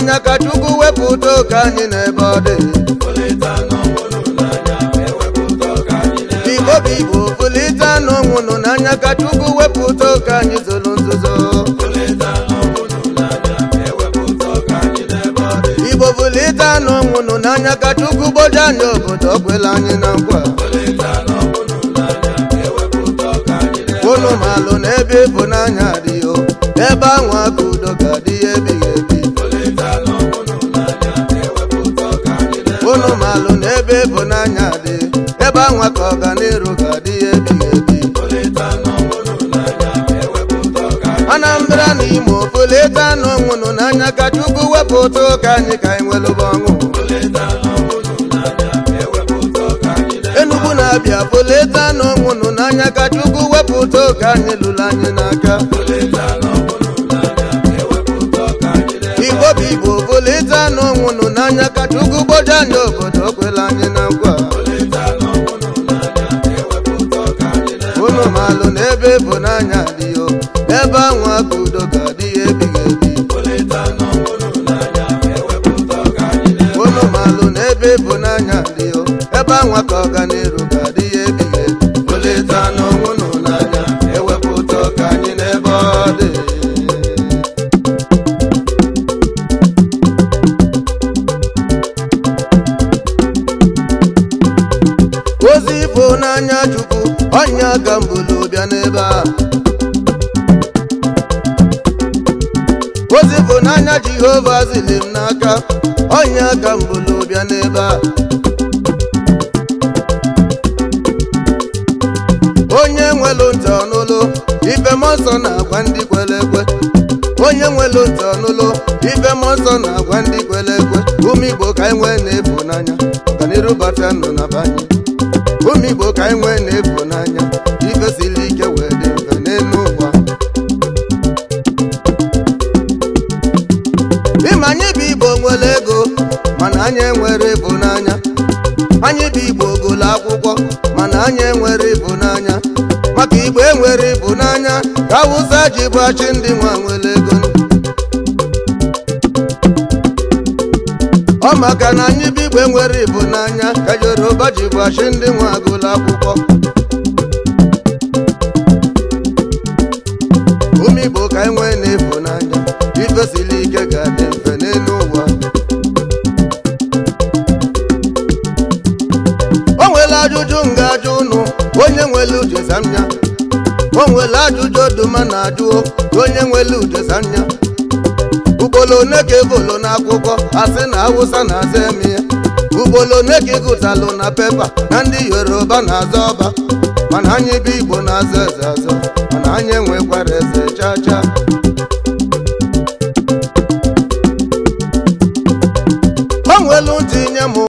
anya ka Chukwu wepụ udo ka anyị n'ebe ọ dị Igbo bụ Igbo pụlite n'onwụ nụ n'anya ka Chukwu wepụ udo ka anyị ọ nzuzo Ibo pụlite n'onwụ n'anya ka Chukwu gboje anyị obodo ọ anyị na nkwa unu malụ n'ebe ịbụ n'anya adịghị ebe anwa ka udo ga-adị ebighị ebe ịbụnanya dị ebe anwa ka ọganiru ga dị ya ebighị ebi Anambra na Imo poleta n'onwunu n'anya ka Chukwu wepụta ụtọ ụka anyị ka anyị nwelụba ọṅụ Enugu na Abịa poleta n'onwunu n'anya ka Chukwu wepụta ụtọ ụka anyị lụrụ anyị n'aka chukwu gboja obodo okwela anyị na nkwa unu malụ na ebe bụ n'anya adịghị ebe ahụ aka udo ga ya ebighị ebi unu malụ na ebe bụ n'anya Igbo n'anya Chukwu ọnya ka mbulu bịa n'ebe a ozi bụ n'anya Jehova zili m n'aka ọnya ka mbulu bịa n'ebe a onye nwelu ntị ọnụlụ ibe m ọsọ na-agwa ndị kwere ekwe onye nwelu ntị ọnụlụ ibe m ọsọ na-agwa ndị kwere ekwe ume Igbo ka anyị e nwee na n'anya, ịbụnanya n'iru bata nọ na banye omigbo ka anyị nwee na-ebu n'anya ifesili ike wee dị mfe n'elu ụwa ịma anyị bụ igbo nwere ego mana anyị enwere ịbụ n'anya anyị bụ igbo gụlụ akwụkwọ mana anyị enwere ịbụ n'anya maka igbo enwere ịbụ n'anya ka awụsa ji bụ achị ndị nwa nwere ego ọ maka na anyị bụ igwe nwere ibu n'anya ka yoruba ji gbachi ndị nwe agụlụ akwụkwọ ume igbo ka enwe na-ebu n'anya ifesili ike ga-adị mfe n'elu ụwa o nwere ajụjụ nga ajụ ụnụ onye nwere uche o nwere ajụjụ oduma na ajụ onye nwere ujezanya ugbolo one ka ebolo n'akwụkwọ asị na awụsa na azọ eme ya ugbolo one ka ịgụtalụ e na pepa na ndị yoruba na azọ ọba mana anyị bụ igbo na-aza eze azọ mana anyị enwekwara eze chaa.